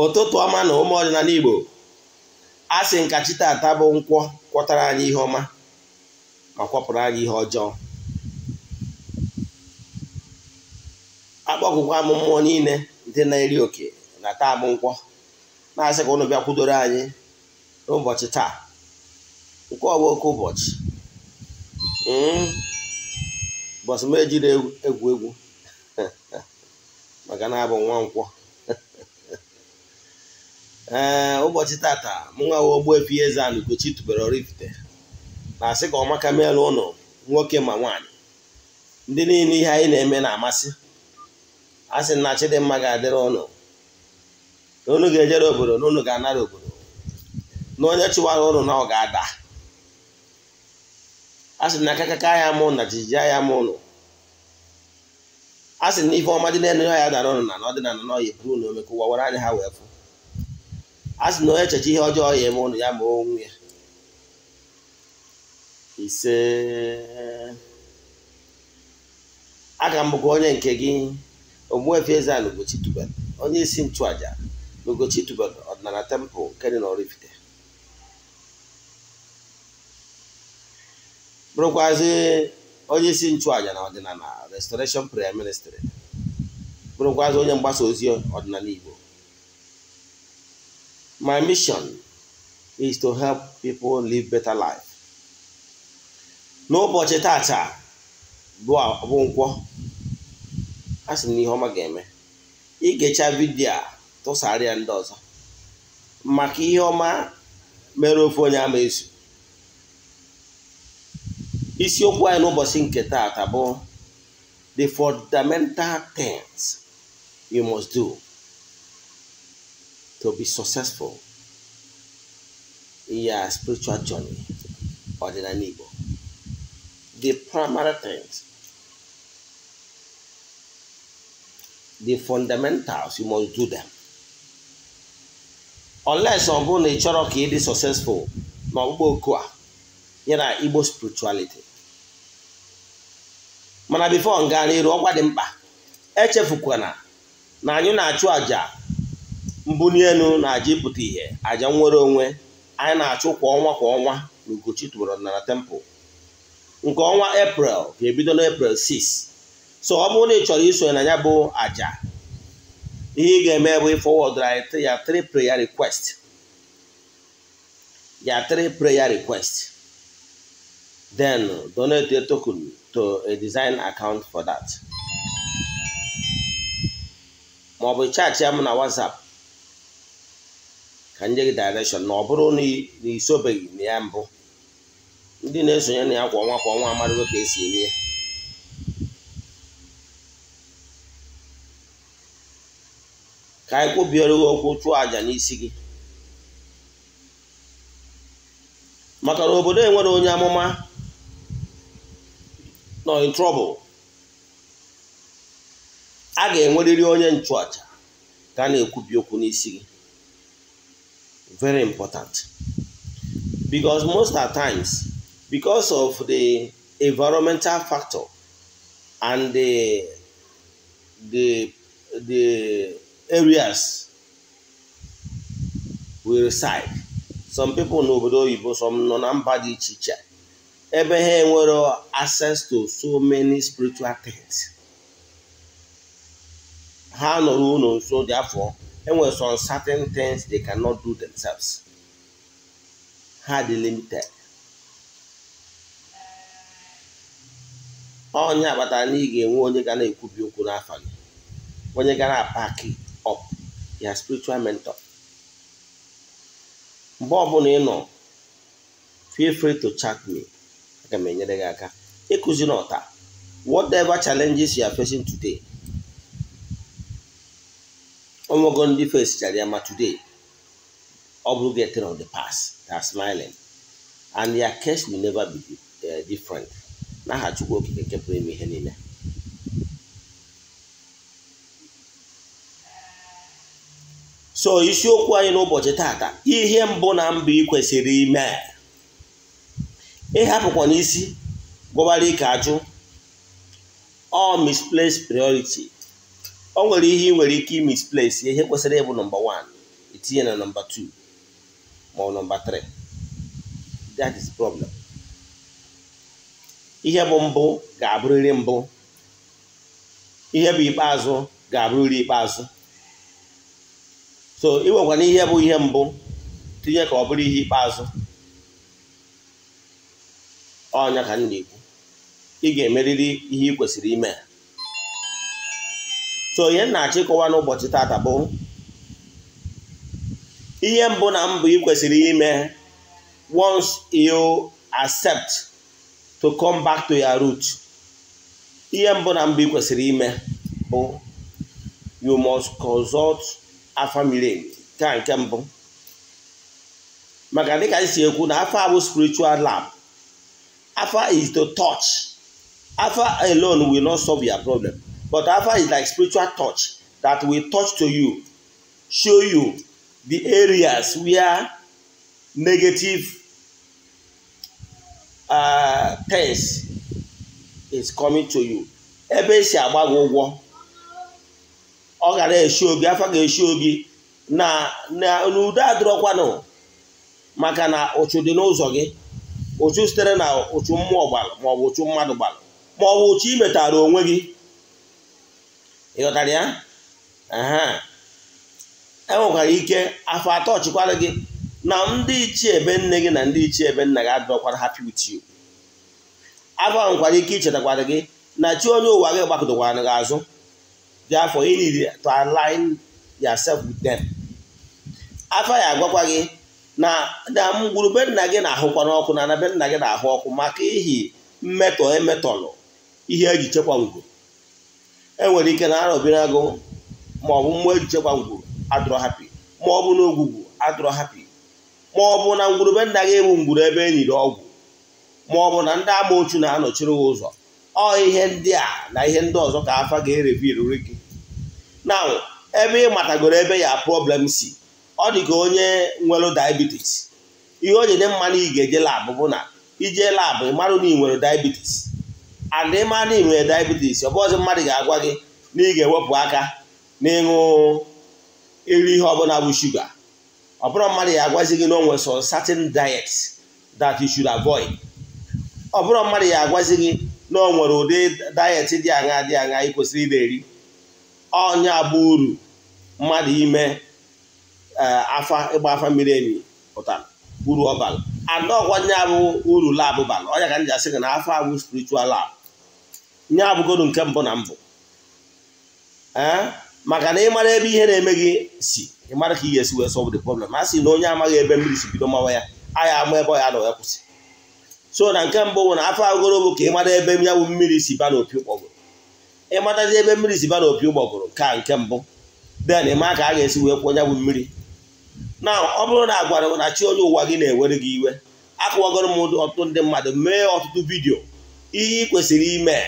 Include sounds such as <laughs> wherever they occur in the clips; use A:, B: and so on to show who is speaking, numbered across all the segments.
A: ụtụtụ ọma na ụmụ ọdịnala Igbo a sị nkachi taata bụ nkwọ kwọtara anyị ihe ọma ma kwọpụrụ anyị ihe ọjọọ akpọkụkwa m mmụọ niile ndị na-eri oke na taa bụ nkwọ na-asị ka ụnụ bịakwudoro anyị n'ụbọchị taa nke ọwa oke ụbọchị hmm. ụbọchị m ejiri egwu egwu <laughs> maka na abụ nwa nkwọ ee ụbọchị tata mụnwa nwa Ogbuefi Eze-Ana Ugochi tụbere Oraifite na-asị ka ọmaka meelụ ụnụ nwoke ma nwaanyị ndị niile ihe anyị na-eme na-amasị a sị na Chidimma ga-adịrị ụnụ na ga-ejere obodo na ụnụ ga-anara obodo na onye chụwara ụnụ na ọ ga-ada a sị na akakaka ya mụ na jijiji ya mụ ụnụ a sị na ife ọma dị n'elu ya dara ụnụ na na n'ọdịnala n'ọyị buru na omekụwa were anya ha wee fụ a sị na onye echeche ihe ọjọọ ya eme ụnụ ya ma onwe ya ise aga m onye nke gị Ogbuefi Eze-Ana onye isi nchụaja na Ugochi tubelu ọdịnala tempụ nke dị n'Oraifite bụrụkwazi onye isi nchụaja na ọdịnala restoration prayer ministry bụrụkwazi onye mgbasa ozi ọdịnala Igbo My mission is to help people live better life. N'ụbọchị tata bụ nkwọ a sị na ihe ọma ga-eme igecha vidio tụsara ya ndị ọzọ maka ihe ọma mere ofe onye ama ezu isiokwu anyị n'ụbọchị nke tata bụ the fundamental things you must do to be successful in your spiritual journey or in an Igbo. The primary things, the fundamentals, you must do them. Unless ọ na ị chọrọ ka ị dị successful ma oku a ya na Igbo spirituality mana before nga n'iru ọgwa dị mkpa echefukwana na anyị na-achụ àjà mbuli elu na-aja ịpụta ihe aja nnwere onwe anyị na-achụ kwa ọnwa kwa ọnwa na Ugochi tụbara temple nke ọnwa eprel ga-ebido n'Eprel 6 so ọ bụrụ na ị chọrọ isonye na ya bụ aja ihe ị ga-eme bụ ịfọwọdụrụ anyị ya three prayer request ya prayer request then donate a token to a design account for that ma ọ bụ chaachị ya m na WhatsApp ka nye gị direction na ọ bụrụ na isobeghị na ya mbụ ndị na-esonye na ya kwa ọnwa kwa ọnwa amarịgo ka esi eme ka anyị kwubiere okwu chụọ àjà n'isi gị maka na obodo enwere onye amụma nọ in a ga-enwerịrị onye nchụàjà ka a na-ekwubi okwu n'isi gị very important because most the times because of the environmental factor and the the the areas we reside some people n'obodo oyibo some nọ na mba dị iche iche ebe ha enwere access to so many spiritual things ha nọrọ ụlọ nso dị afọ enwere some certain things they cannot do themselves ha dị limited onye akpatara na ị ga-enwe onye ga na-ekwubi okwu n'afọ gị onye ga na-apaki up ya spiritual mentor mgbe ọbụla ị nọ feel free to chat me aga m enyere gị aka ịkụzi n'ọta whatever challenges you are facing today ụmụ ndị face chara ya ma today ọ bụ getting of the past they smiling and their case will never be eh, different n'aha Chukwu Okike nke pụrụ ihe niile so isiokwu anyị n'ụbọchị tata ihe mbụ na mba ị kwesịrị ime ịhapụkwa n'isi gwọbara ike ajụ all misplaced priority Ọ nwere ihe ị nwere ike imisplace ihe kwesịrị ịbụ nọmba 1 itinye na nọmba 2 ma ọ nọmba 3 that is problem ihe bụ mbụ ga-abụrịrị mbụ ihe bụ ikpeazụ ga-abụrịrị ikpeazụ so iwekwana ihe bụ ihe mbụ tinye ka ọ bụrụ ihe ikpeazụ ọnya ka m na-ekwu ị ga-emerịrị ihe ị kwesịrị ime so ihe na-achọ ịkọwa n'ụbọchị tata bụ ihe mbụ na mbụ ị kwesịrị ime once you accept to come back to your root ihe mbụ na mbụ ị kwesịrị ime bụ you must consult a family nke nke mbụ maka dịka ka si ekwu na afọ abụ spiritual lab afọ is to touch afọ alone will not solve your problem But Alpha is like spiritual touch that will touch to you, show you the areas where negative uh, things is coming to you. Ebe esi agbago ụgwọ, ọ gara eshi obi, afa ga eshi obi na na n'udo adịrọkwanụ maka na ụchụ dị n'ụzọ gị ụchụ sitere na ụchụ mmụọ ọ maọbụ ụchụ mmadụ ọ maọbụ ụchụ imetara onwe gị ịghọtara ya enwekwara ike afọ atọ ọchịkwara gị na ndị ichie ebe nne gị na ndị ichie ebe nna gị adọkwara ha with afọ nwekwara nkwara ike ichetakwara gị na chi onye ụwa gị gbakọtakwara gị azụ dị afọ you need to align yourself with them afọ ya agwakwa gị na damgwurube nna gị na-ahụkwa n'ọkụ na anabe nna gị na-ahụ ọkụ maka ihi mmetọ emetọlụ ihe eji chekwa ngwo enwere ike na arọbiri agụ ma ọ bụ mmụọ ejije gbangwuru adụrọ hapi ma ọ bụ na ogwugwu hapi ma ọ bụ na ngwurube nna gị ewu ngwuru ebe enyiri ọgwụ ma ọ bụ na ndị amoochu na-anọchiri gị ụzọ ọ ihe ndị a na ihe ndị ọzọ ka afa ga-ereviri gị na ebe ị matagoro ebe ya problem si ọ dị ka onye nwere diabetes ihe onye nye dị mma na ị ga-eje labụ bụ na ijee labụ ị marụ na ị nwere diabetes and ịma na ị nwere diabetes ọ bụ mmadụ ga-agwa gị na ị ga-ewepụ aka na ịṅụ iri ihe ọbụla bụ shuga ọ bụrụ mmadụ ya agwazi gị na o nwere some certain diet that you should avoid ọ bụrụ mmadụ ya agwazi gị na ọ nwere ụdị diet dị aṅa dị aṅa ị kwesịrị ị eri ọnya bụ uru mmadụ ime afa ịgba afa mmiri emi pụtara uru ọbala anọ ọgwa nya bụ uru labụ bara ọnya ka m ji asị gị na afọ abụ spiritual lab nye abụgodu nke mbụ na mbụ eh? maka na ị mara ebe ihe na-eme gị si ịmara ka ị ga-esi wee solve the problem a sị na onye amaghị ebe mmiri si bido mawa ya agha ama ebe ọ ya na ya kwụsị so na nke mbụ bụ na afọ agụrụ bụ ka ịmara ebe ya bụ mmiri si ba n'opi ụgbọgụrụ ị matazi ebe mmiri si ba n'opi ụgbọgụrụ ka nke mbụ den ị ka a ga-esi wee kwụọ ya bụ mmiri na ọ bụrụ na agwara na chi onye ụwa gị na-ewere gị iwe akụwagoro m ọtụtụ ndị mmadụ mee ọtụtụ vidiyo ihe ị kwesịrị ime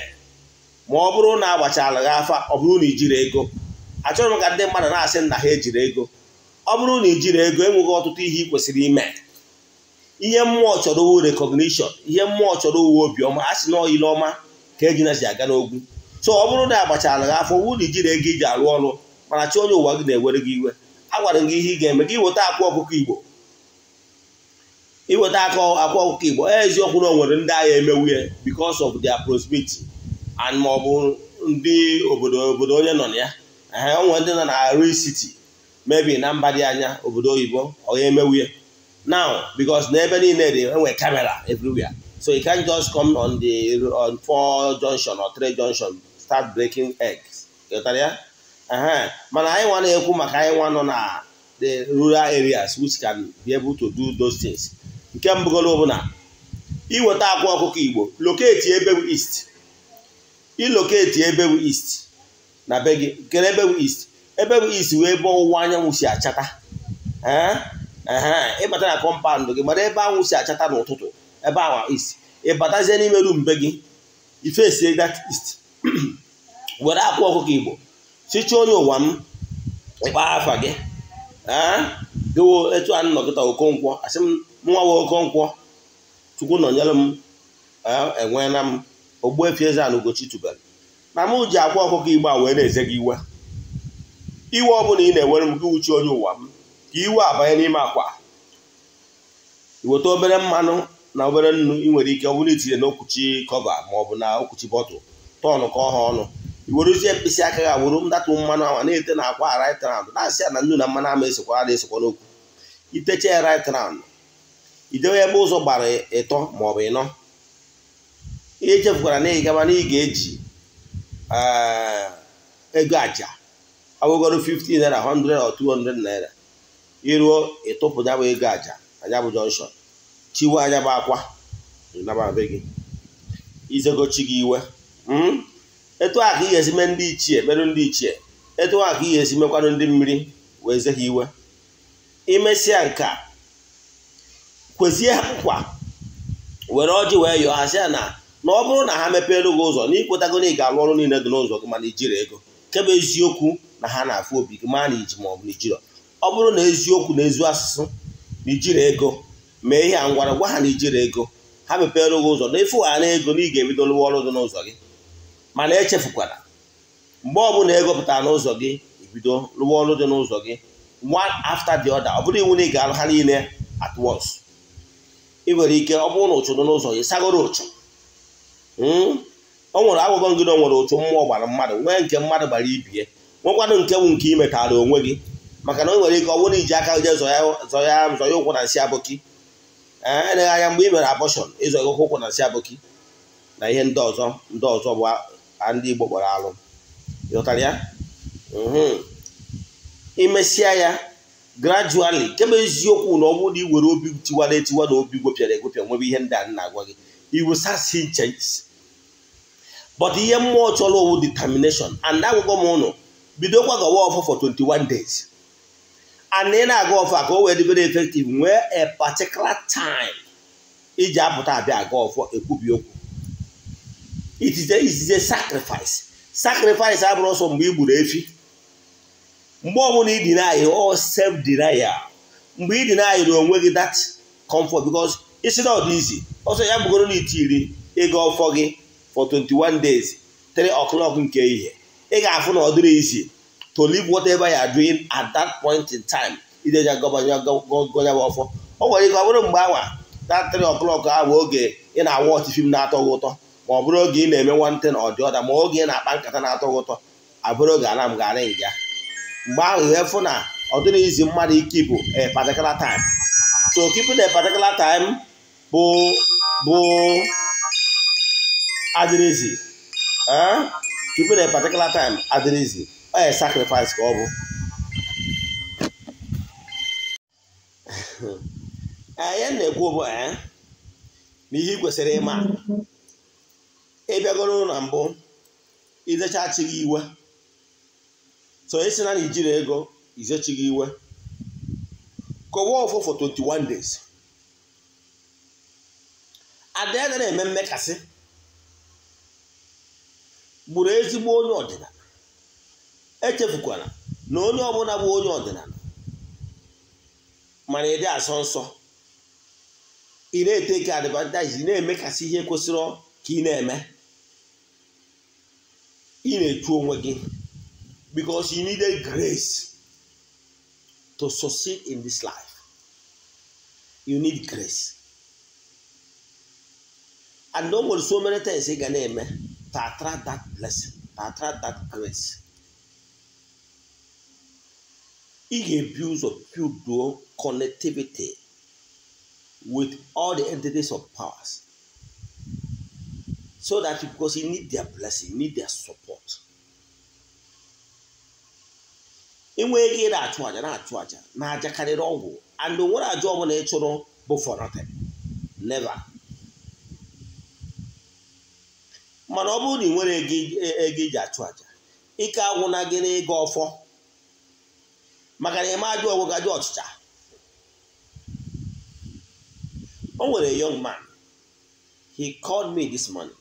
A: ma ọ bụrụ na agbachala gị afa ọ bụrụ na ijiri ego achọrọ m ka ndị mmadụ na-asị na ha ejiri ego ọ bụrụ na ijiri ego enweghị ọtụtụ ihe ị kwesịrị ime ihe mmụọ chọrọ owu recognition ihe mmụọ chọrọ owu obiọma a sị na ọma ka eji nazi aga n'ogwu so ọ bụrụ na agbachala gị afọ na ijiri ego iji arụ ọrụ mana chi onye ụwa gị na-ewere gị iwe agwara gị ihe ị ga-eme gị weta akwa ọkụkọ igbo iweta akwa ọkụkọ igbo eziokwu na o nwere ndị agha emewuye bikos of their prosperity and ọ bụ ndị obodo obodo onye nọ na ya ee onwe ndị nọ na risiti mebi na mba dị anya obodo oyibo ọ ga-emewu ya now because n'ebe ebe niile dị enwe kamera everywhere so i can't just come on the on four junction or three junction start breaking eggs ghọtara ya ee mana anyị nwa na-ekwu maka anyị nwa nọ na the rural areas which can be able to do those things nke mbụgolo bụ na iweta akwa ọkụkọ igbo locate ebe east iloketi ebe bụ na be gị kere ebe bụ ist ebe bụ ist wee ebe ọwụwa anyanwụ si achata ịbata na kọmpandụ gị mara ebe anwụ si achata n'ụtụtụ ebe awa ist ịbatazie n'ime rum be gị ifesie that ist <clears throat> were akwụ ọkụkọ igbo sicha onye ụwa m kpaa afa gị dịwo etu a nnọkịta okonkwo asị m nwa nwa okonkwo chukwu nọnyere m enweela m Ogbuefi Eze-Ana Ugochi tubelu na mụ ji akwa ọkụkọ igbe a wee na-eze gị iwe iwe ọbụla ị na-enwere m gị uchi onye ụwa m ka iwe abanye n'ime akwa iweta obere mmanụ na obere nnu ị nwere ike ọ bụrụ itinye n'okwuchi kọva ma ọ bụ na okwuchi bọtụl tọnụ ka ọha ha ọnụ iweruzie mkpịsị aka ga wuru mdatụ mmanụ ama na-ete na akwa right round na-asị ya na nnu na mmanụ ama esokwara na-esokwa n'okwu itecha ya right round idewe ebe ụzọ gbara ịtọ ma ọ bụ ịnọ ihe echefukwara na ị na ị ga-eji eh, ego aja awụgoro 15 naira 100 or 200 naira iruo ịtụpụ ya ego aja anya bụ jọnshọn chiwe anya bụ akwa nababe gị izegochi gị iwe hmm? etu a ka ị ga-esi mee ndị ichie merụ ndị ichie etu a ka ị ga-esi mekwanụ ndị mmiri wee ze ha iwe imesịa nke a kwezie ha nkwa were ọjị wee yọọ ha na na ọ bụrụ na ha mepeelu gị ụzọ na ịkwetago na ị ga-alụ ọrụ niile dị n'ụzọ gị mana ijiri ego nke eziokwu na ha na-afụ obi gị ma na iji ma ọ bụ ijiri ọ bụrụ na eziokwu na ezu asụsụ na ijiri ego mee ihe a ngwara gwa ha na ijiri ego ha mepeelu gị ụzọ na ịfụ na ego na ị ga-ebido lụwa ọrụ dị n'ụzọ gị mana echefukwara mgbe ọbụla ego pụtara n'ụzọ gị ebido lụwa ọrụ dị n'ụzọ gị one after the other ọ bụrụ iwu na ị ga arụ ha niile at once ị nwere ike ọ bụrụ na ụchụ dị n'ụzọ gị sagoro ụchụ Hmm? ọ nwere agwụgọ na o nwere otu mmụọ gbara mmadụ nwee nke mmadụ gbara ibie nwekwanụ nke bụ nke imetara onwe gị maka na o nwere ike ọ bụrụ iji aka je zọya ụkwụ na nsị abụki eleghị anya mgbe ị mere abọshọn ịzọghị ụkwụ na nsị abụki na ihe ndị ọzọ ndị ọzọ bụ ndị Igbo kpọrọ alụ ịghọtara ya imesịa hmm. ya grajuali kemgbe eziokwu na ọ bụrụ na i were obi tiwara etiwa na obi gwepịara egwepịa nwebe ihe ndị a na-agwa gị iwusasi but ihe mmụọ chọrọ owu determination and agwụgwọ m ụnụ bido ọfọ for 21 days and ị na-aga ọfọ ka o wee dịbere effective nwee a particular time iji apụta abịa aga ọfọ ekwubi okwu it is a sacrifice sacrifice abụrụ ọsọ mgbe i gburu efi mgbe ọbụla ị deny self denial mgbe ị deny onwe gị that comfort because not easy ọsọ ya bụgoro na itiri ịga ọfọ gị for 21 days 3 o'clock nke ihe ị ga-afụ na ọ dịrị izi to leave whatever you are doing at that point in time ideja gọnyaba ọfọ o nwere ike ọ bụrụ mgbe awa that 3 o'clock ahụ oge ị na-awa ọchị fim na-atọ gị ụtọ ma ọ bụrụ oge ị na-eme nwantị na ọdị ọda ma oge ị na-akpa nkata na-atọ gị ụtọ abụrụ oge ana m gara nga mgbe ahụ ihe fụ na ọ dịrị izi mmadụ ike bụ a particular time so keeping a particular time bụ bụ adịrịzi tupu eh? na particular time adịrịzi ọ ya sacrifice ka ọ bụ anyị <laughs> eh, na-ekwu bụ eh, na ihe kwesịrị ịma ịbịagoro na mbụ izechachi iwe so esi na ijiri ego izechi iwe kọwa ọfọ for 21 days ada na-eme mmekasị ezi ezigbo onye ọdịnala echefukwala na onye ọbụla bụ onye ọdịnala mana ịdị asọ nsọ ị na-ete ka advantage na-emekasị ihe kwesịrị ka ị na-eme ị na-echu onwe gị because you need grace to succeed in this life you need grace and o nwere so many things ị ga na-eme to attract that blessing, to attract that grace. Ị ga-ebu ụzọ builduo connectivity with all the entities of powers so that because you need their blessing, you need their support. enwee ego ị na-achụ aja na-achụ aja na ajakarịrị karịrị ọgwụ and nwere aja ọbụla ị chụrụ bụ for nothing never
B: mana ọ bụrụ na ị nwere
A: ego iji e, achụ aja ike agwụna gị n'ịga ọfọ maka na ịma ajụ ọgwụ gajụ ọchịcha o nwere young man he called me this morning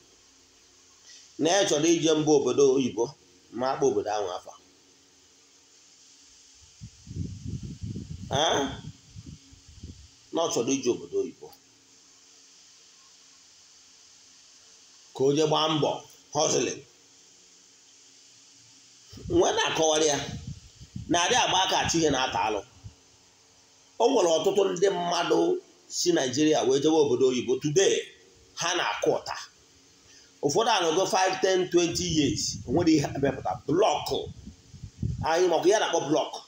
A: na ya chọrọ ije mba obodo oyibo ma akpa obodo ahụ afọ na ọ chọrọ ije obodo oyibo ka o jee gbaa mbọ họzụlin nwe na-akọwara ya na-adị agba aka ihe na-ata alụ o nwere ọtụtụ ndị mmadụ si naijiria wee jewe obodo oyibo today ha na-akụ ụta ụfọdụ anọgo 5 10 20 years onwere ihe amepụta blọkụ anyị maka ya na-akpọ blọkụ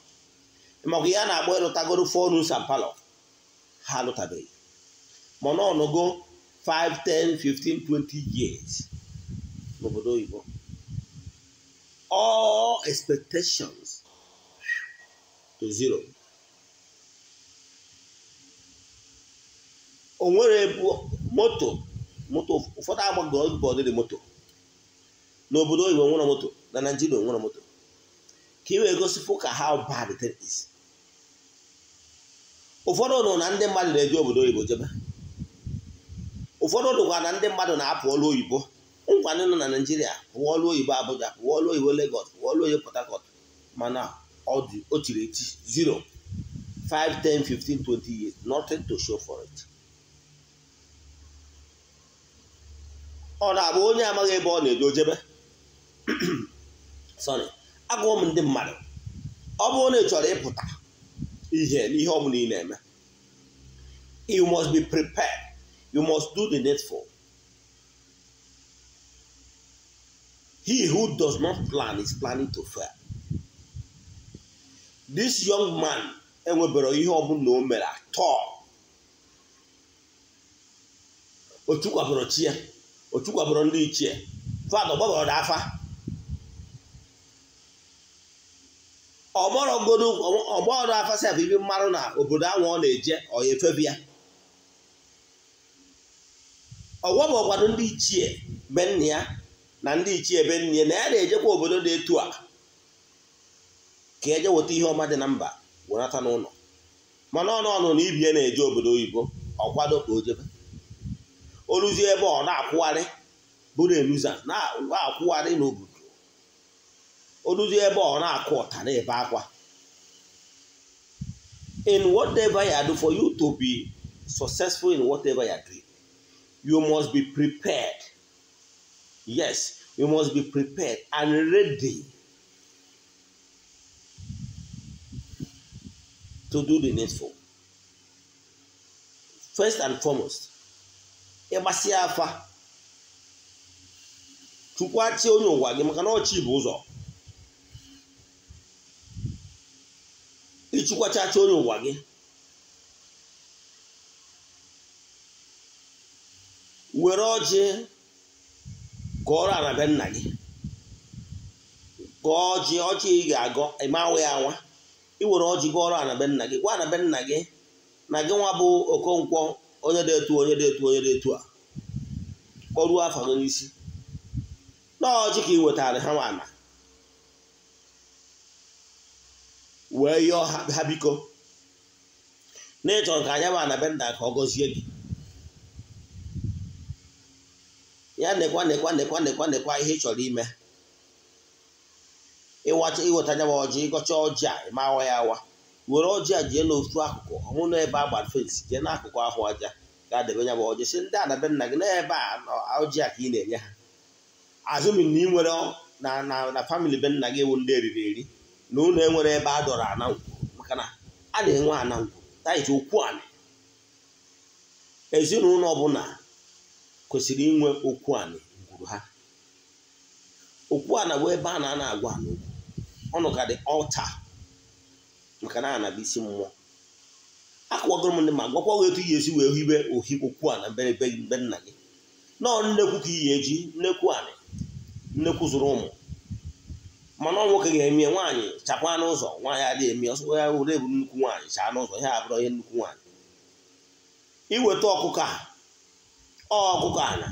A: maka ya na-akpọ ịlụtagoro fonu sampalo ha alụtabeghị mana ọnụgo 5 10 15 20 years n'obodo oyibo all expectations to zero o nwere moto moto ụfọdụ agbago dị moto n'obodo oyibo nwere moto na naijiria nwere moto ka ị wee gosipụ ka how bad it is ụfọdụ nọ na ndị mmadụ na-eji obodo oyibo jebe ụfọdụ ụlọgwa na ndị mmadụ na-apụ ọrụ oyibo ngwanị nọ na naijiria pụwa ọrụ oyibo abụja pụwa ọrụ oyibo legọs pụwa ọrụ oyibo port harcourt mana o tiri eti zero 5 10 15 20 years nothing to show for it ọ na-abụ onye amaghị ebe ọ na-eje ojebe <clears throat> sorry agụọ m ndị mmadụ ọ bụrụ na ị chọrọ ịpụta ihe n'ihe ọ bụla ị na-eme you must be prepared You must do the needful. He who does not plan is planning to fail. This young man enwebere ihe ọ ọbụla o mere atọ o chukwabụrụ chi ya o chukwabụrụ ndị ichie fada dị afa ọgbọrọgodo ọgbọrọ afa sef ibi mmanụ na obodo ahụ ọ na-eje ọ ya efebi ya ọgwọ bụ ọgwado ndị ichie benne ya na ndị ichie benne ya na ya na-ejekwa obodo dị etu a ka eje weta ihe ọma dị na mba wenata n'ụlọ mana ọnụ ọnụ na ibie na-eje obodo oyibo ọkwado ka o jebe ebe ọ na-akwụgharị bụrụ eluza na-akwụgharị n'obodo o ebe ọ na-akụ ọta na-ebe akwa in whatever you do for you to be successful in whatever you are doing you must be prepared. Yes, you must be prepared and ready to do the needful. First and foremost, ịgbasi afa chukwu achị onye ụwa gị maka na ọchị bụ ụzọ ịchịkwacha achị onye ụwa gị were ọjị gụọrọ ala nna gị gụọ ọjị ọjị ị ga-agọ ịmawa ya ị iwere ọjị gụọrọ ala nna gị gwa ala nna gị na gị nwa bụ okonkwo onye dị etu onye dị etu onye dị etu a kpọruo afọ gị n'isi na ka ị wetara ha nwana wee yọọ ha biko na ịchọrọ ka anya bụ na nna ka ọ gọzie gị ya nekwa nekwa nekwa nekwa nekwa ihe ị chọrọ ime ịwacha iweta anya ọjị ịgọcha ọjị a ma awa ya awa were ọjị a jee n'otu akụkụ ọnwụ ebe a gbara fensi jee n'akụkụ ahụ aja ga-adebe nya ọjị si ndị adabe nna gị n'ebe a ọjị a ka ị na-enye ha azụmi na ị nwere na na na famili be nna gị ewu ndị eriri eri na ụlọ enwere ebe a dọrọ ana ngwu maka na a na-enwe ana ngwu taiti okwu anị ezinụlọ ọbụla kwesịrị inwe okwu a gwuru ha okwu ana bụ ebe a na-ana agwa n'okwu ọnụ ka dị ọcha maka na ana bụ isi mmụọ akụwagoro m ndị ma gwakwa gị etu ihe esi wee hibe ohi okwu a na mberebe mbe nna gị nọọ nnekwu ka ihe eji nnekwu anị nnekwu zụrụ ụmụ mana ọ nwoke ga emie nwaanyị chakwa n'ụzọ nwaanyị adịghị eme ọsọ ya ure bụ nnukwu nwaanyị chaa n'ụzọ ihe abụrụ ihe nnukwu nwaanyị iweta ọkụkọ a ọgụgụ ala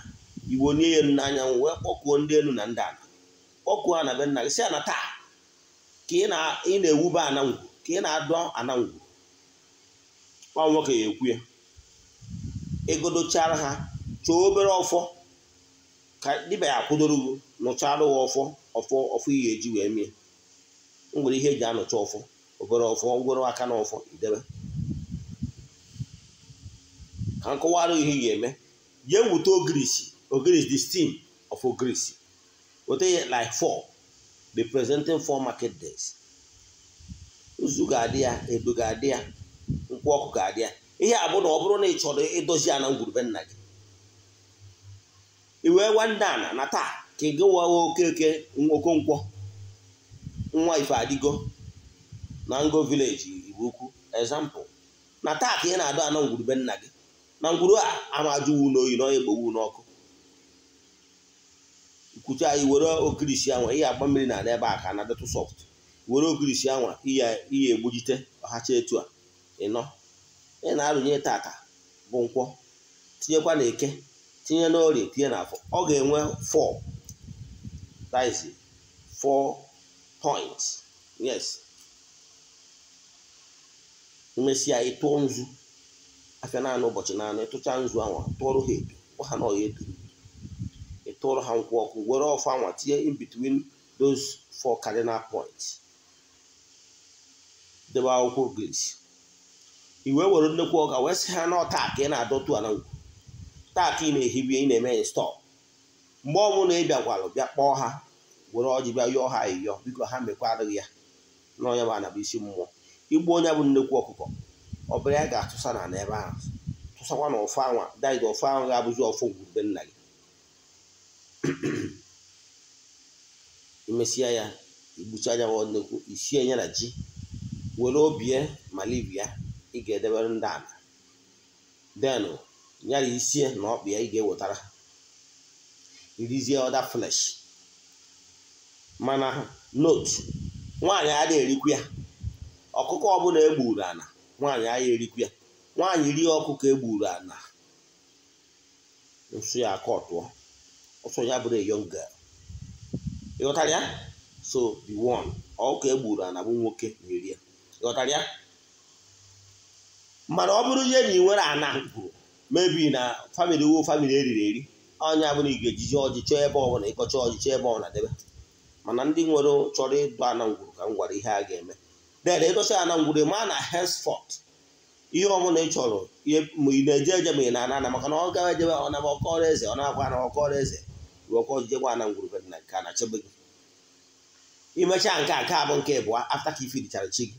A: igbo nye ya elu n'anyanwụ wee kpọkuo ndị elu na ndị ala kpọkuo ana be nna gị si ana taa ka ị na-ewube ana ka ị na-adọ ana ngwu nwoke ya ekwu ya egodochara ha chọọ obere ọfọ ka dibịa ya kwụdoro gị nụchara ụwa ọfọ ọfọ ọfọ ihe eji wee mie ngwere ihe eji anụcha ọfọ obere ọfọ ngwere aka na ọfọ idebe ka nkọwara ihe ga-eme jee wute ogrisi ogirisi the steam of ogirisi weta ya like four representing four market days uzu ga-adị ya edo ga-adị ya nkwụ ọkụ ga-adị ya ihe a bụ na ọ bụrụ na ị chọrọ idozi ana ngwurube nna gị iwe nwande ana na taa ka ị okeke okonkwọ nwa ife adigo na ngo vileji iwu ukwu na taa ka ị na-adọ ana ngwurube nna gị na ngwuru a ama ajụwu n'oyi na onye egbowu n'ọkụ nkwuchi anyị were okirisi anwa ihe agba mmiri na ebe a ka na-adịtụ sọft were okirisi anwa ihe egbujite ọhacha etu a ịnọ ị na-arụnye tata bụ nkwọ tinyekwa na eke tinye na tinye na afọ ọ ga-enwe fọ fọ points yes nzu afịa naanị ụbọchị naanị tụcha nzu anwa tụọrọ ha gwa ha na ọya eduru ha nkwụ ọkụ were ọfụ anwa tinye in between those four cardinal points debe akwụkwọ gris i wee were nnekwu ọka wee sị ha na ọta ị na-adọtu ana ngwu ị na-ehibie ị na-eme stọọ mgbe ọ bụla ị bịakwalụ bịa kpọọ ha were ọjị bịa yọọ ha eyọ biko ha adịghị ya na bụ anabụ isi mmụọ igbu onye bụ nnekwu ọkụkọ ọ bụrụ ya ga-atụsa na n'ebe ahụ tụsakwa na ọfụ anwa daid ọfụ anwụ ga-abụzi ọfụ ngwurube nna gị imesịa ya anya ya nnekwu isie ya na ji were obie malibia ị ga-edebere ndị ala denụ nyara isie na ọkpụ ya ị ga-ewetara irizie ọda flesh mana note nwaanyị adịghị erikwu ya ọkụkọ ọbụla e gburu ala nwaanyị ahịa erikwu ya nwaanyị rie ọkụkọ e gburu ana nso ya aka ọtụọ ọsọ ya bụrụ young girl ịghọtara ya so the one ọkụkọ e gburu ana bụ nwoke na-eri ya ịghọtara ya mana ọ bụrụ ihe na ị nwere ana gwuru mebi na famili wo famili eriri eri onye bụrụ ị ga ọjị chọọ ebe ọbụla ịkọcha ọjị chọọ ebe ọbụla debe mana ndị nwere chọrọ ịdụ ana ngwuru ka m gwara ihe a ga-eme dede ịtụcha ya na ngwure ma na henceforth ihe ọmụna ị chọrọ ma ị na-eje eje ma ị na-ana maka na ọ gawa ejebe ọ na-ama ọkọrọ eze ọ na-akwa na ọkọrọ eze ruo ọkọ na ngwurube na nke a na chebe gị imechaa nke a nke abụ nke ịbụa afta ka ifidichara chi gị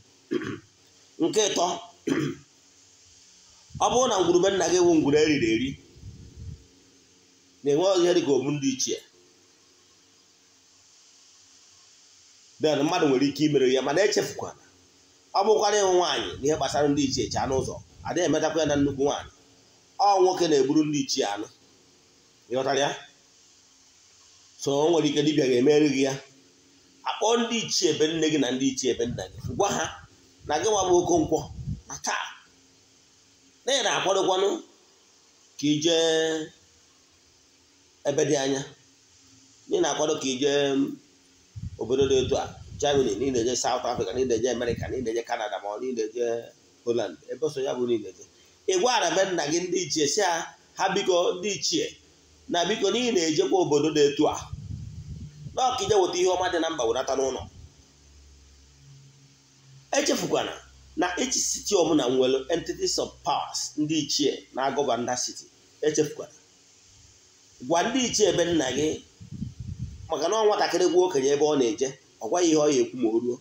A: <clears throat> nke ịtọ <clears throat> ọ bụrụ na ngwurube nna gị wụ ngwure eriri eri na-enwe ihe dị obu ndị ichie den mmadụ nwere ike imere ya mana echefukwana ọ bụkwara ịnwụ nwaanyị n'ihe gbasara ndị ichie eche anụ ụzọ adịghị emetakwa ya na nnukwu nwaanyị ọ nwoke na-eburu ndị ichie anụ ịghọtara so o nwere ike dibia ga-emeri gị ya akpọ ndị ichie ebe nne gị na ndị ichie ebe nna gị gwa ha na gị nwa bụ okonkwo na taa na na-akwadokwanụ ka ijee ebe dị anya na ị na-akwado ka ijee obodo dị otu a Germany niile je South Africa niile je America niile je Canada ma ọ niile je holand ebe ya bụ niile je ị gwara be nna gị ndị ichie si ha biko ndị ichie na biko n'ihi na-ejekwa obodo na-etu a na ọkije weta ihe ọma dị na mba wenata n'ụlọ echefukwana na echi siti ọbụla nwere entities of powers ndị ichie na-agọba nda city echefukwana gwa ndị ichie ebe nna gị maka na ọ nwatakịrị gwa okenye ebe ọ na-eje ọgwaghị ihe ọ ya ekwu ma o ruo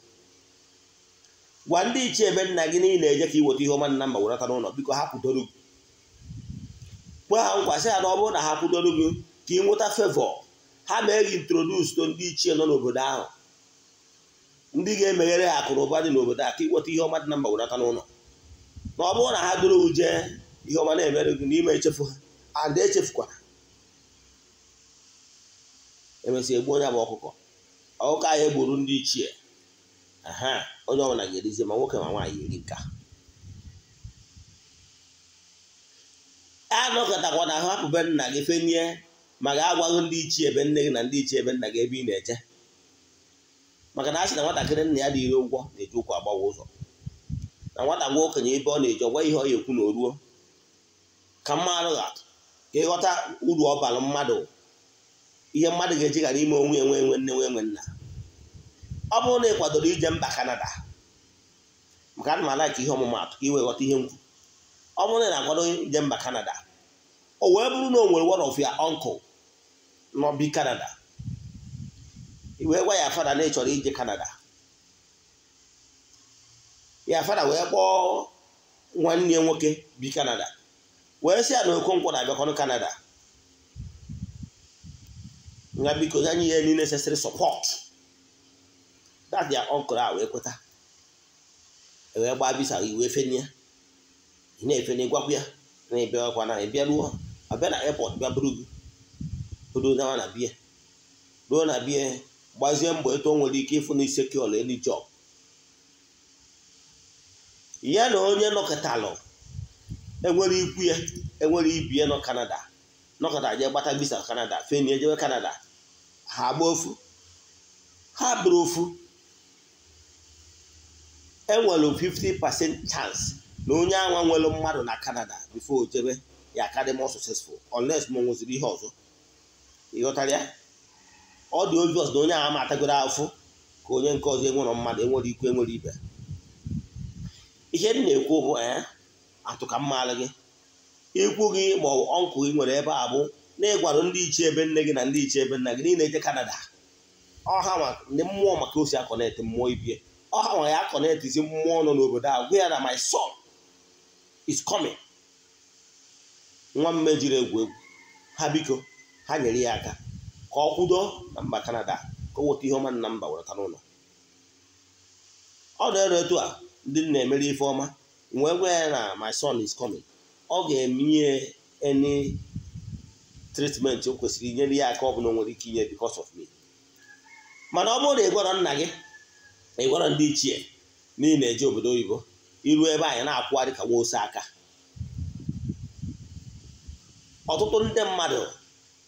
A: gwa ndị ichie ebe nna gị niile eje ka iweta ihe ọma nna ma werata n'ụlọ biko ha kwudoro gị kwe ha nkwa sị ha na ọ bụrụ na ha kwudoro gị ka ị nweta fevọ ha mee gị introdus to ndị ichie nọ n'obodo ahụ ndị ga-emeghere ha akụ ụba dị n'obodo a ka ịnweta ihe ọma dị na mba werata n'ụlọ na ọ bụrụ na ha doro uje ihe ọma na-emere gị n'ime echefu ha ada echefukwara emesịa egbu onye bụ ọkụkọ ọkụkọ ahụ egburu ndị ichie aha onye ọbụla ga-erizi ma nwoke ma nwaanyị eri nka anọkọtakwa na ahụ hapụbe nna gị fenie ma ga-agwaghị ndị ichie ebe nne gị na ndị ichie ebe nna gị ebe ị na-eje maka na a sị na nwatakịrị nna ya dị ire ụgwọ na-eji ụkwụ agbawa ụzọ na nwata gwa okenye ebe ọ na eji ọgwa ihe ọ ya ekwu na oruo ka mma arụgha ka ịghọta uru ọ mmadụ ihe mmadụ ga-eji ghara ime onwe enwe enwe nne nwe nna ọ bụrụ na ị kwadoro ije mba Kanada maka ana m ka ihe ọmụmatụ ka iwe ghọta ihe nkwu ọ bụrụ na ị na-akwado ije mba Kanada o wee bụrụ na o nwere one of n'obi Kanada wee gwa ya fada na ị chọrọ ije Kanada ya fada wee kpọọ nwanne nwoke bi Kanada wee sị ya na Okonkwo na-abịakwanụ Kanada nga biko anyị nye any necessary support that their uncle a wee kweta ewee gbaa bisa iwe efenye ya ị na-efenye gwakwu ya na ebe ọkwa na ịbịa ruo abịa na airport bịa buru gị buru dawa na bie ruo na bie gbazie mbọ etu nwere ike ịfụ na ise kol elu ya na onye nọkọtalụ enwere ikwu ya enwere ibi ya nọ Canada nọkọta jee gbata visa Canada feni ejewe Canada ha gba ofu ha bụrụ ofu enwere 50% chance na onye anwa nwere mmadụ na Canada bifo jebe ya karị more successful unless ma nweziri ihe ọzọ ịghọtara ya ọ dị obios na onye agha matagoro afụ ka onye nke ọzọ enwere mmadụ enwere ikwu enwere ibe ihe m na-ekwu bụ eh, atụ ka mma gị ikwu gị ma gị nwere ebe a bụ na-egwarụ ndị iche ebe nne gị na ndị iche ebe nna gị niile eje Kanada ọha ndị mmụọ maka osi akọnet mmụọ ibie ọha nwa ya isi mmụọ nọ n'obodo a gwa ya na my son is coming nwa mme jiri egwu egwu ha biko ha nyere ya aka ka ọ kwudo na mba Kanada ka ọ weta ihe ọma nna mba wereta n'ụlọ ọ na-ere etu a ndị na-emere ife ọma nwee gwa ya na my son is coming ọ ga-emenye eni tritmenti o kwesịrị inyere ya aka ọ bụla nwere ike inye because of me mana ọ bụrụ na ị gwara nna gị na ị gwara ndị ichie na ị na-eje obodo oyibo iru ebe anyị na-akwụgharị ka nwa aka ọtụtụ ndị mmadụ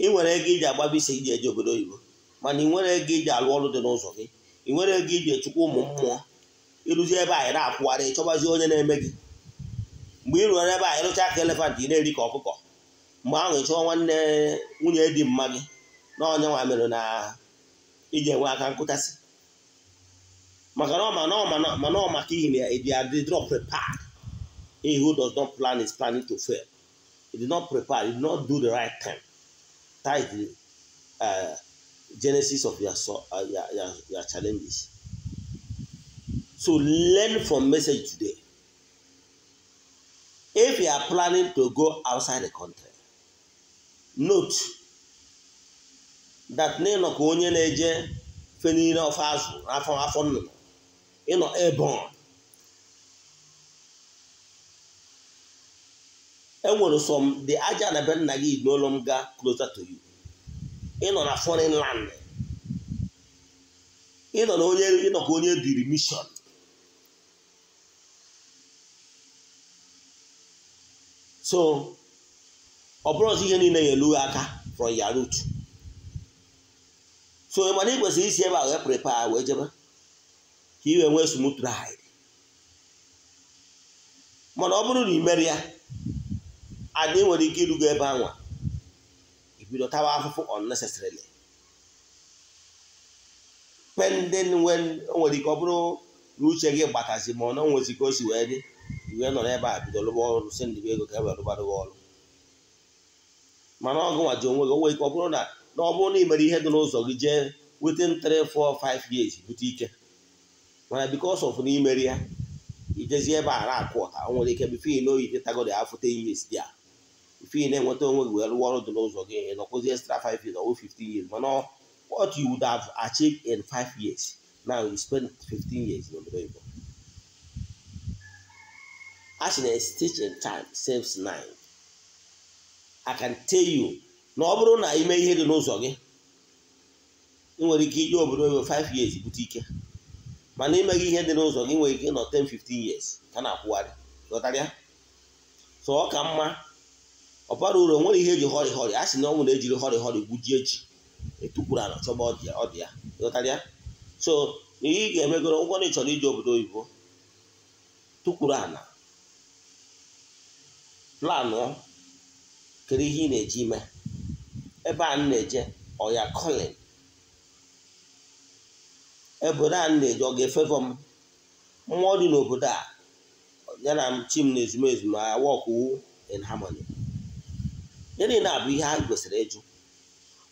A: ị nwere ego iji agbaba isi iji eje obodo oyibo mana ị nwere ego iji alụ ọrụ dị n'ụzọ gị ị nwere ego iji echukwa ụmụ mmụọ ịrụzi ebe anyị na-akwụgharị ịchọbazi onye na-eme gị mgbe ị rụrụ ebe anyị rụcha aka elefant ị na-eri ka ọkụkọ mgbe ahụ ị nwanne nwunye dị mma gị na onye nwa mere na iji enwe aka nkụtasị maka na mana ọ maka ihi na ya dị adị not prepared he who does not plan is planning to fail he did not prepare he did not do the right time. that is the uh, genesis of your, uh, your, your, your challenges so learn from message today if you are planning to go outside the country note that n'ịnọ ka onye na-eje fe niile ọfọ azụ afọ afọ nnụnụ ịnọ ebon enwere som dị aja na be nna gị n'ụlọ m gaa closer to you ịnọ na foreign land ịnọ na onye ịnọ ka onye diri mission so ọ bụrụ ọzọ ihe niile ya elu aka from ya root so mana ị kwesịrị isi ebe wee prepare wee jebe ka ị wee nwee smooth ride mana ọ bụrụ na ị mere ya adị nwere ike irugo ebe anwa ibido tawa afụfụ unnecessarily pending when o nwere ike ọ bụrụ na uche gị gbatazi ma ọ na nwezi ka o si wee dị iwe nọ ebe a bido lụba ọrụ si ndị ego ka e wee rụbara ọrụ mana ọ gụwa ji onwe gị onwe ike ọ bụrụ na na ọ bụrụ na ị mere ihe dị n'ụzọ gị jee within 3 4 5 years bute ike mana because of na imere ya ijezi ebe a na-akụ ọka o nwere ike bifo ị n'oyitetagodi afọ 10 years dị a ife na-enweta onwe gị wee rụọ ọrụ dị n'ụzọ gị ị nọkwụzi extra 5 years or 15 years mana what you would have achieved in 5 years now you spend 15 years n'obodo in time saves nine. I can tell you na ọ bụrụ na ime ihe dị n'ụzọ gị ị nwere ike iji obodo ebe 5 years bute ike mana imeghị ihe dị n'ụzọ gị nwere ike ịnọ 10 15 years ka na-akwụgharị ghọtara so ọ ka mma ọ bara uru nwere ihe eji hori hori a sị na ọnwụ na-ejiri hori hori gbujie ji etukwuru ala chọba so ihe ị ga-emegoro ngwa na ị chọrọ iji obodo oyibo tukwuru ala planụ kedu ihe ị na-eji ime ebe a na-eje ọya kolin obodo a na-eje ọ ga-efevọ m mmụọ dị n'obodo a ya na chi m na ezumezu ma wọkụ in harmony gịnị na-abụ ihe a gwesịrị ịjụ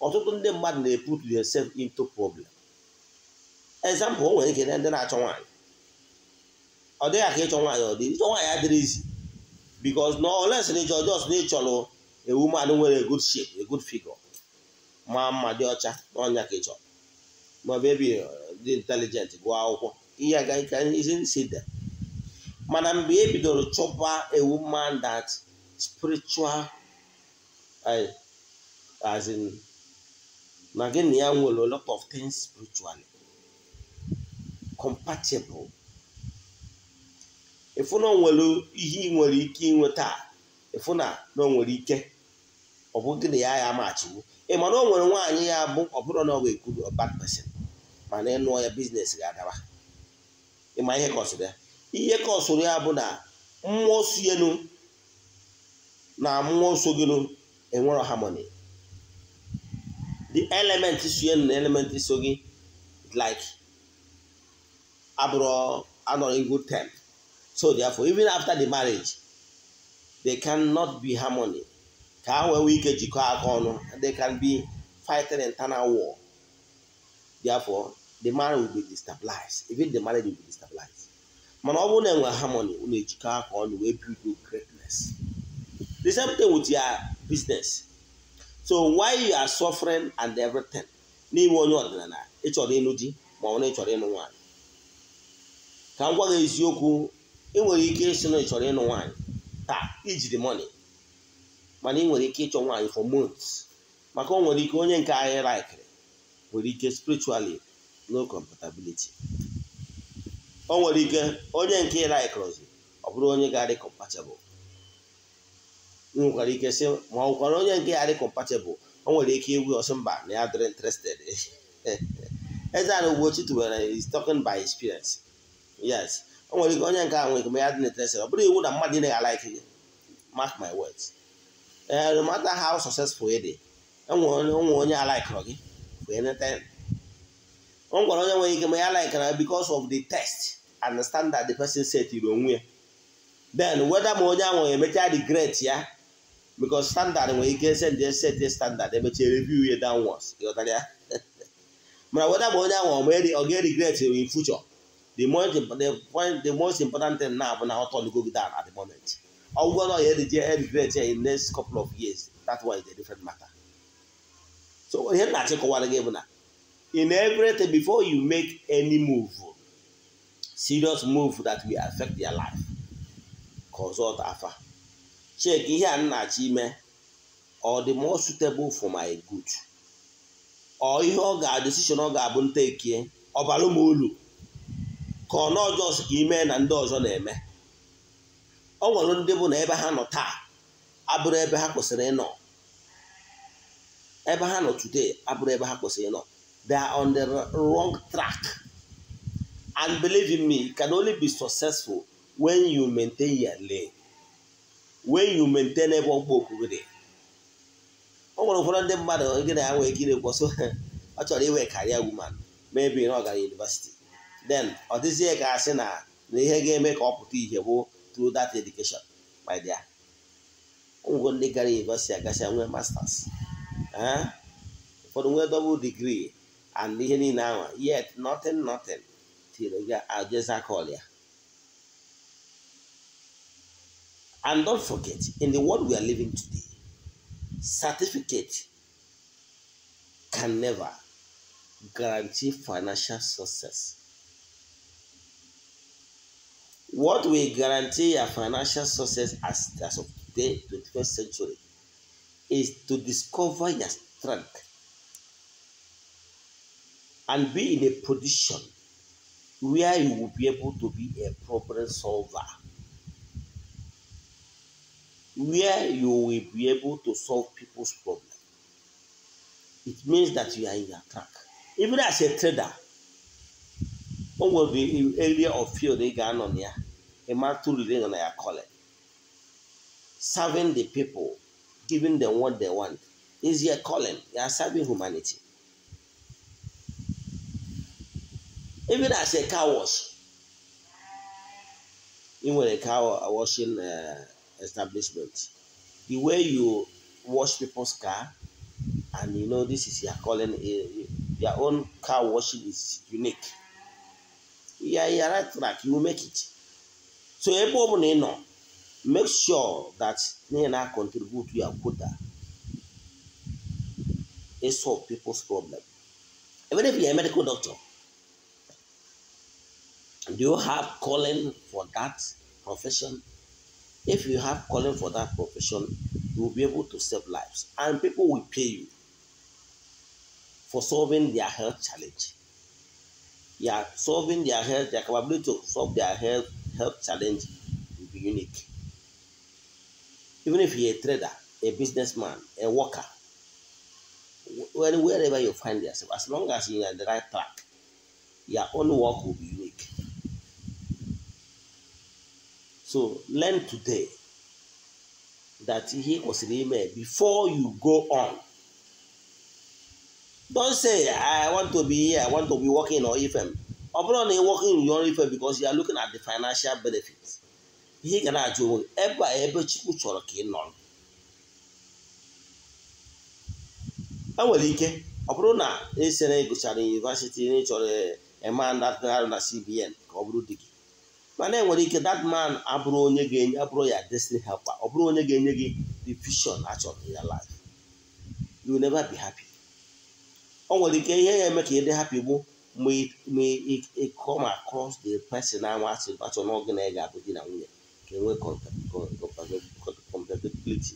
A: ọtụtụ ndị mmadụ na-eput yosef into problem example o nwere ike ndị na-achọ nwaanyị ọ dịghị ka ịchọ nwaanyị ọ dị ịchọ nwaanyị adịrịzi because na ọ na ịchọ ọjọọ na ịchọrọ ewu mmadụ nwere good shape a good figure ma mma dị ọcha n'ọnya ka ị chọrọ maọbụ uh, ebi dị intelligent gụọ akwụkwọ ihe agaghị ka isi nsi dị mana mgbe e bidoro chọba a woman that spiritual as in na gị na ya nwere lot of things spiritually compatible ịfụ na o nwere ihe ị nwere ike inweta ịfụ na na o nwere ike ọ bụ di na ya ya machigbu ma na o nwere nwaanyị ya bụ ọbụrụ na ọ ga bad person mana ịnụọ ya biznes ga-adaba ịma ihe kọsịrị ya ihe ka ya bụ na mmụọ sienu na mmụọ soginu enwero harmony the element sienu na element so gị like abụrụ anọrọ in good time so therefore even after the marriage they cannot be harmony ka ha wee ike jikọọ aka ọnụ they can be fighting internal war therefore the marriage will be destabilized even the marriage will be destabilized mana ọ bụrụ na enwe harmony ụlọ ejikọ aka ọnụ wee build greatness the same thing with your business so why you are suffering and everything n'inwe onye ọdịnala ịchọrọ ịnụ di ma ọ na ịchọrọ ịnụ nwaanyị ka m gwa gị eziokwu ị nwere ike ịsị na ịchọrọ ịnụ nwaanyị taa ijiri money mana ị nwere ike ịchọ nwaanyị for months maka o nwere ike onye nke anyị laikiri nwere ike spiritually no compatibility o nwere ike onye nke ị laikiri ọ bụrụ onye ga-adị compatible ị nwekwara ike sị ma ọ kwara onye nke ya dị compatible o nwere ike iwu ọsọ mba na ya dịrị interested <laughs> eze ana Ugochi tụwere is talking by experience yes o nwere ike onye nke a nwere ike ma ya dị interested ọ bụrụ iwu na mmadụ ị naghị alaiki gị mark my words ee eh, no matter how successful ị dị enwere onye e alaikọrọ gị wee neta ọ gwara onye nwere ike ma ya laikara because of the test and the standard the person setiri onwe ya then weda ma onye ahụ emecha regret ya because standard nwere ike send set standard emechie review ya downwards ịghọtara ya <laughs> mana weda ma onye ahụ ọ ga-regret in future the most important thing na bụ na ọ gị down at the moment ọgwụgwọ na onye dị emigrate in next couple of years that one is a different matter so ihe m na-achịkọwara gị bụ na in everything before you make any move serious move that will affect their life consult afa check ihe a m na-achọ ime ọ dị more suitable for my good ọ ihe ọ ga decision ọ ga-abụ ntekie or bara m uru ka ọ na ọjọọ ka ime na ndị ọzọ na-eme ọ nwere ndị bụ na ebe ha nọ taa abụrụ ebe ha kwesịrị ịnọ ebe ha nọ today abụrụ ebe ha kwesịrị ịnọ they are on the wrong track and believe in me you can only be successful when you maintain your lane when you maintain ebe ọgba okwu gị ọ nwere ụfọdụ ndị mmadụ gị na ya nwee ike ịrekwo so <laughs> ọ chọrọ inwe karịa woman maybe ọ gara university then ọ dịzie ka asị na na ihe ga-eme ka ọ pụta ihe bụ through that education, my dear. Only negari, University, I get I masters. Huh? For the double degree and in now, yet nothing, nothing. Till you get just call you. And don't forget, in the world we are living today, certificate can never guarantee financial success. What will guarantee your financial success as, as of today, 21st century, is to discover your strength and be in a position where you will be able to be a problem solver, where you will be able to solve people's problem. It means that you are in your track. Even as a trader, be nwere area of field ị ga-anọ na ya a man to rely on your calling. Serving the people, giving them what they want, is your calling. You are serving humanity. Even as a car wash, even a car washing uh, establishment, the way you wash people's car, and you know this is your calling. Eh, eh, your own car washing is unique. You are, you are right track. You will make it. so ebe ọ bụla ị nọ make sure that ihe na contribute ya quota uh, e solve people's problem even if you're a medical doctor do you have calling for that profession if you have calling for that profession you will be able to save lives and people will pay you for solving their health challenge you are solving their health their capability to solve their health health challenge will be unique. Even if you're a trader, a businessman, a worker, wherever you find yourself, as long as you're on the right track, your own work will be unique. So learn today that he was in before you go on. Don't say, I want to be here, I want to be working or FM. ọ bụrụ na ị nwoke nri ọrụ ife favor because you are looking at the financial ihe ga na-ajụ onwe gị ebe a ebe Chukwu chọrọ ka ị nọrọ e nwere ike ọ bụrụ na esi e na ịgụchara eh, yunivasịtị na ịchọrọ eman na CBN ka ọ bụrụ di gị mana enwere ike that man abụrụ onye ga-enye abụrụ ya destiny helper ọ bụrụ onye ga-enye gị the vision achọrọ in life you will never be happy o nwere ike ihe ya eme ka ị dị happy bụ may it come across the person ahụ asị atọ n'oge na ị ga-abụ di na nwunye ka enwe compatibility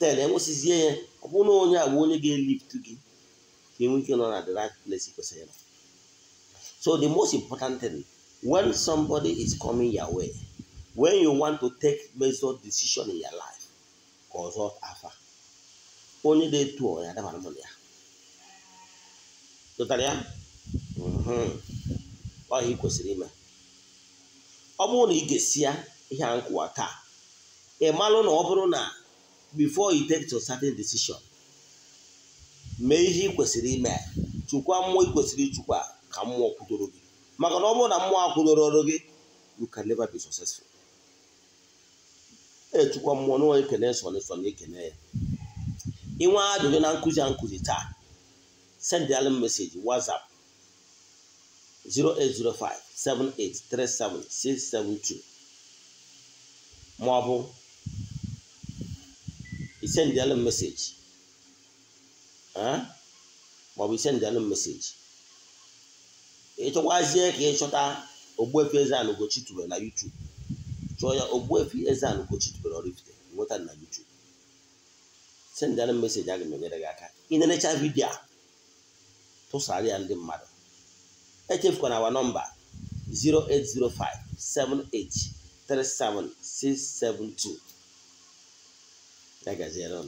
A: then enwesịzie ya ọ bụrụ na onye agwa onye ga-elift gị ka enwe ike nọ na the right place kwesịrị nọ so the most important thing when somebody is coming your way when you want to take major decision in your life consult afa onye dị etu ọ ya adabara mụ na ya tụtara ya mhm. ọ ihe kwesịrị ime ọ bụrụ na ị ga-esi ya ihe a nkụwa taa ị malụ na ọ bụrụ na before you take to certain decision mee ihe ị kwesịrị ime chụkwa mmụọ ị kwesịrị itukwa ka mmụọ kwudoro gị maka na ọ bụrụ na mmụọ akwụdoro gị you can never be successful echukwa mmụọ n'onye kene na ekene ya ajụjụ na nkụzi a nkụzi taa send them message WhatsApp 0805 672 maọbụ isendịalụ meseji maọbụ isendịalụ meseji ịchọkwazie ka ị chọta Ogbuefi Eze-Ana Ugochi tubelu na YouTube chọọ ya Ogbuefi Eze-Ana Ugochi tubelu Oraifite nweta na YouTube sendịalụ meseji aga m enyere gị aka ị nenecha vidiyo a tụsara ya ndị mmadụ echefukwana awa nọmba 08057837672 ya gaziere